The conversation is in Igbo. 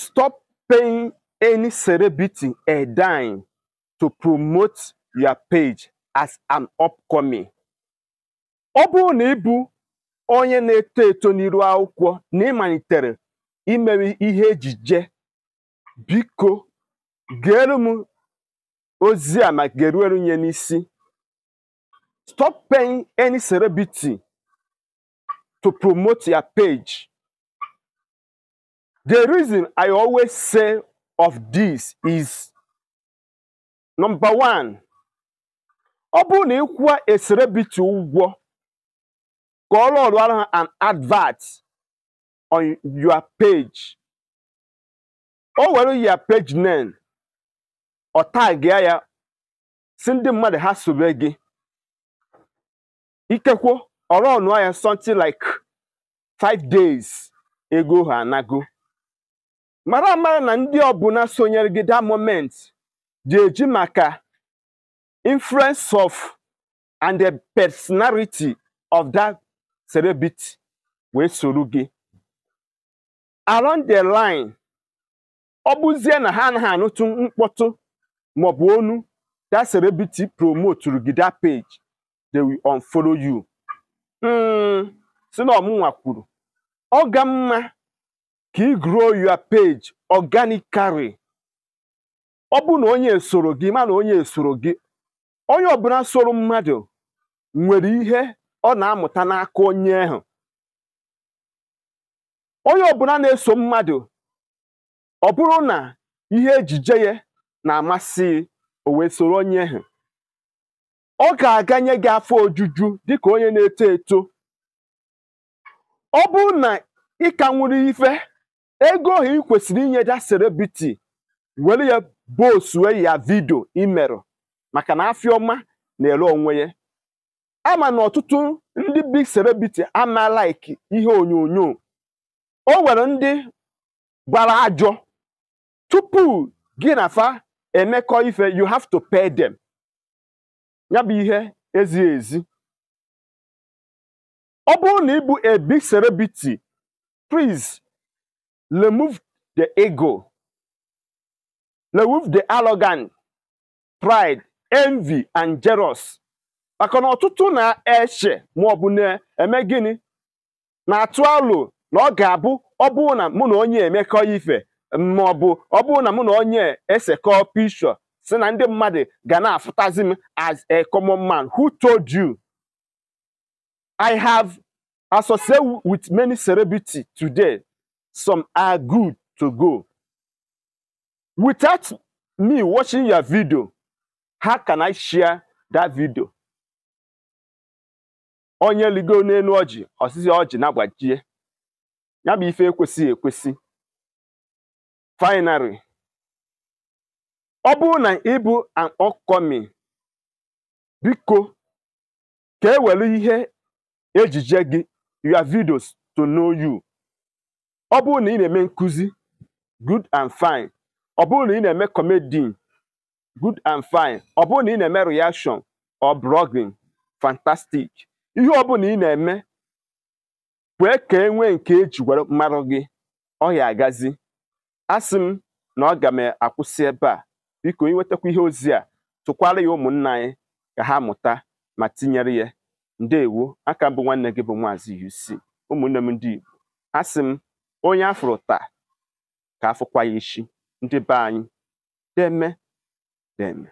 Stop paying any celebrity a dime to promote your page as an upcoming. Ọ bụrụ na ị bụ onye na-eto eto n'iru akwụkwọ na ịmalitere imewe ihe ejije biko geere m ozi a ma geruere nye n'isi stop paying any celebrity to promote your page The reason I always say of this is number one, ọ bụrụ na ịkwụwa bitu ụgwọ ka ọrụ ọrụ ahụ an advert on your page o were your page name ọ tag ya si ndị mmadụ ha sobe gị ikekwo ọrụ ọnụọ ya something like five days ego ha anago mara mara na ndị ọbụna sonyere gị that moment dị eji maka influence of and the personality of that celebrity wee soro gị around the line ọ bụzie na ha anaghị anụtụ mkpọtụ maọbụ onu that celebrity promote gị that page they will unfollow you hmm, sị na ọmụnwa kwuru ọ ga mma ka ị grow your page organically ọ bụ na onye soro gị ma na onye soro gị onye ọbụla soro mmadụ nwere ihe ọ na-amụta n'aka onye ahụ onye ọbụla na-eso mmadụ ọ bụrụ na ihe ejije ya na-amasị o wee soro onye ahụ ọ ga-aganye gị afọ ojuju dịka onye na-eto eto ọ bụrụ na ị ka nwere ife ego ohi ị kwesịrị inye da celebrity were ya bosue ya vidio imerụ maka na afịọma na-ere onwe ya ama na ọtụtụ ndị big serebiti ama like ihe onyonyo o nwere ndị gbara ajọ tupu gị na fa emekọ ife you have to pay them ya bụ ihe ezighi ezi ọ bụrụ na ịbụ a big priz remove the ego, remove the arrogant, pride, envy, and jealous. maka na ọtụtụ na-eche ma ọ bụ na-eme gịnị na-atụ alụ na ọ ga-abụ ọ bụrụ na mụ na onye emekọ ife ma ọ bụ ọ bụrụ na mụ na onye esekọ pishọ si na ndị mmadụ ga na-afụtazi m as a common man who told you I have associated with many celebrities today some are good to go. Without me watching your video, how can I share that video? onye ligo n'elu oji osisi oji na-agbajie ya bụ ife ekwesịghị ekwesị finally ọ bụrụ na ịbụ an upcoming biko ka ewere ihe ejije gị your videos to know you ọ bụrụ na ị na-eme nkụzi good and fine ọ bụrụ na ị na-eme comedy good and fine ọ bụrụ na ị na-eme reaction or blogging fantastic ihe ọ bụla ị na-eme kwee ka e nwee nke eji gwara mmarụ gị ọ ya agazi asị m na ọ ga m akwụsị ebe a biko ịnwetakwa ihe ozi a tụkwara ya ụmụnna anyị ka ha mụta ma tinyere ya ndeewo aka mbụ nwanne gị bụ Maazị UC ụmụnne m ndị Igbo asị m onye afro taa ka afụkwa ya ishi ndị be anyị deme deme